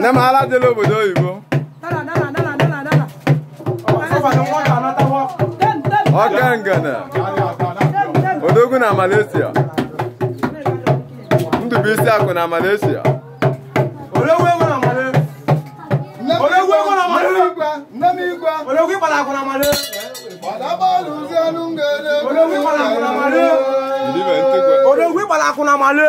nne m ala obodo oyibo ọka ngana odogwu na Malaysia Ndụbụisi akụ na Malaysia ológun ìpàdà àkùnà màdé. Bàdábọ́ọ̀lù sí ọdún gẹ̀ẹ́dẹ́. Ológun ìpàdà àkùnà màdé. Ológun ìpàdà àkùnà màdé.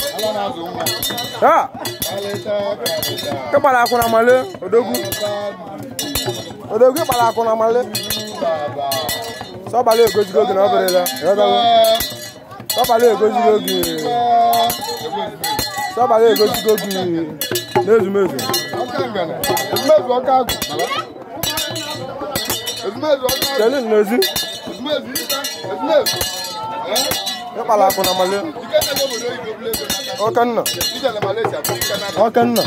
Ah. Ke pala aku nama le, odogu. Odogu pala aku nama le. So pala ego jigo gina obere la. Yo da. So pala ego jigo gi. So pala ego jigo gi. Mezu mezu. Mezu ọka agụ. Mezu ọka agụ. mezu. Mezu ezi. Mezu ita. Mezu. Eh? ịkpala akwụ na male okenna okenna okenna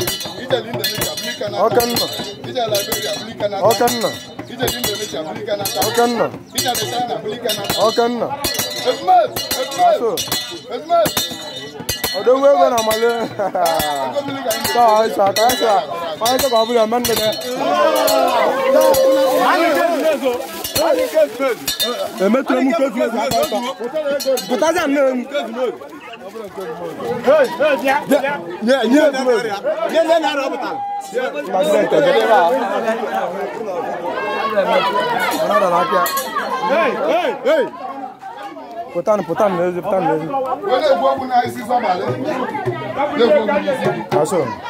okenna okenna okenna aso odowe na male ha ha ha Emetro mu kwefu ezu aka ọtọ. Pụtazi anụ emu. Nye nye ezu ezu. Nye nye narị ọpụta. Pazidenti ọjọọ ebe a. Ọnọdụ n'aka. Pụtanụ pụtanụ n'ezi pụtanụ n'ezi. Olee egwu ọgwụ na-esi zọbalị? Olee